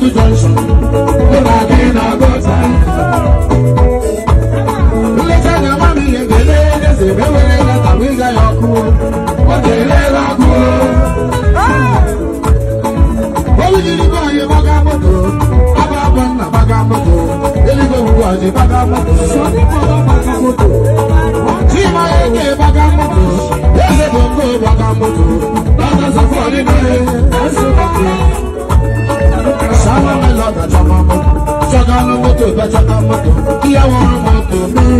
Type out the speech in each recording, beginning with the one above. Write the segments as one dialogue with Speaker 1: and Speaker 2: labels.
Speaker 1: Junction. Saji bagamoto, Saji bagamoto, Chima eke bagamoto, Eze bongo bagamoto, Bata safari nore, Sawa meloda chama moto, Chagano moto, Bachaka moto, Kiyawa moto, Mee.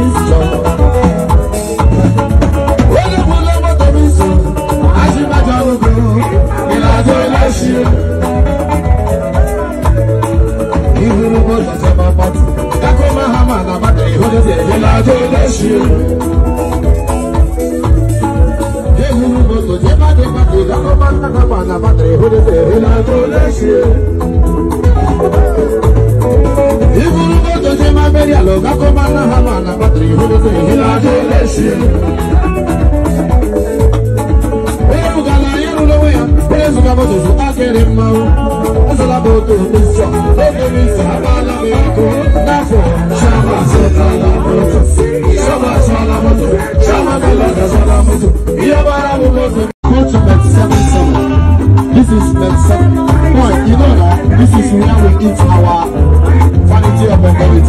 Speaker 1: ṣe. Jésù moto chama kalanga this is bet boy you know that this is where we eat our quality of mentality.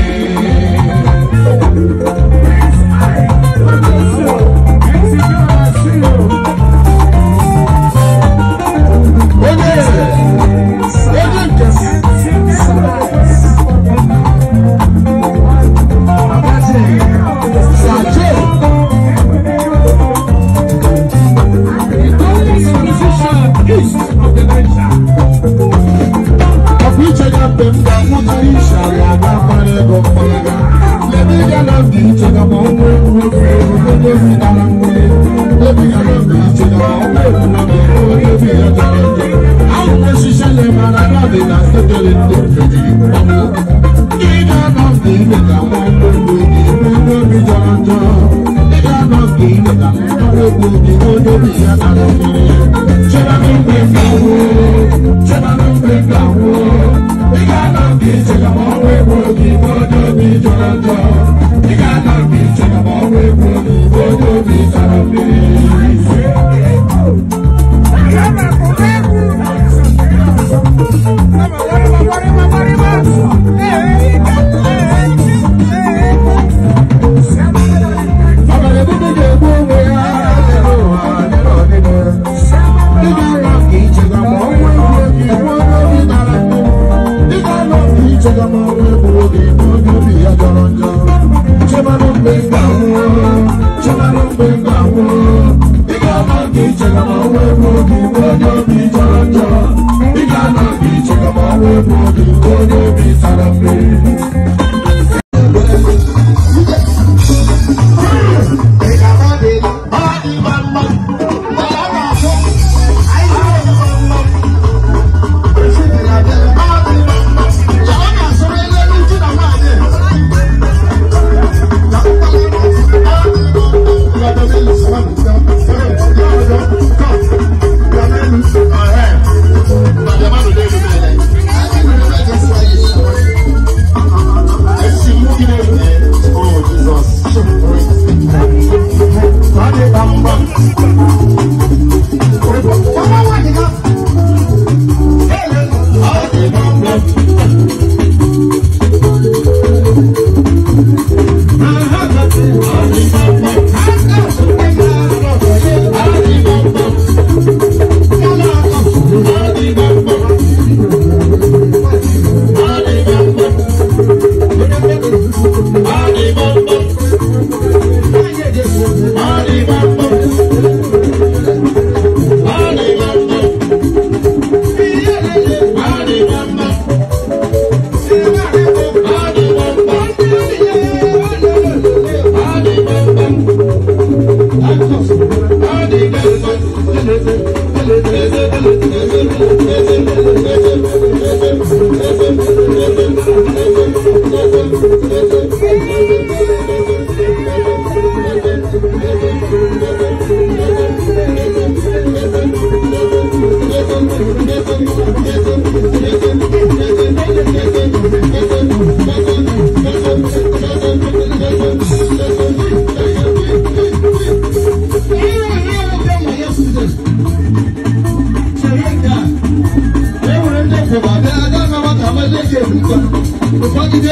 Speaker 1: 啊。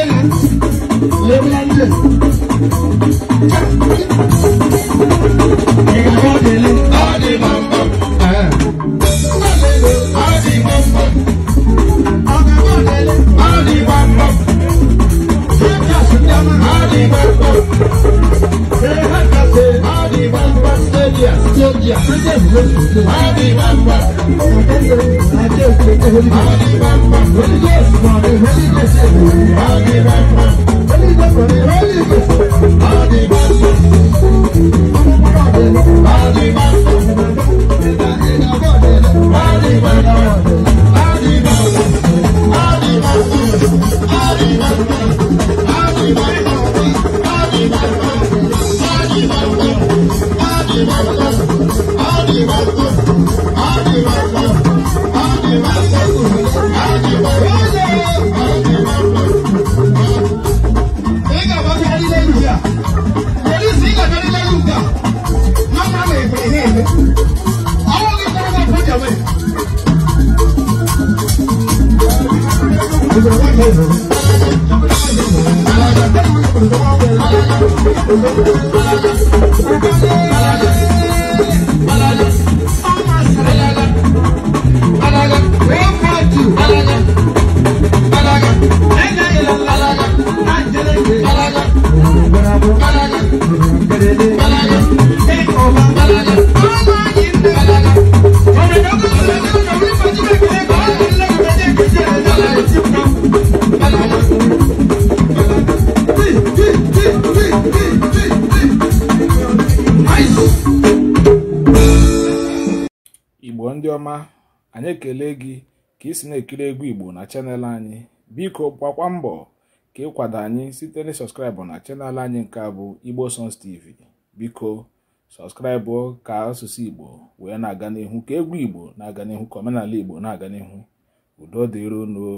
Speaker 1: Leland, Leland. You got the Leland, all India, Georgia, Britain, Mexico. Holy Mamba. Holy Ghost, Holy Ghost, Holy Ghost. Holy Mamba. Holy Ghost, Holy Ghost. Holy Mamba. Holy Mamba. Holy Mamba. Holy Mamba. igbo ndị ọma anyị ekele gị ka isi na-ekiri egwu igbo na chanel anyị biko gbakwa mbọ ka ịkwado anyị site na sọskraịbụ na chanel anyị nke bụ igbo songs tv biko sọskraịbụ ka asụsụ igbo wee na-aga n'ihu ka egwu igbo na-aga n'ihu ka omenala igbo na-aga n'ihu udo dịrono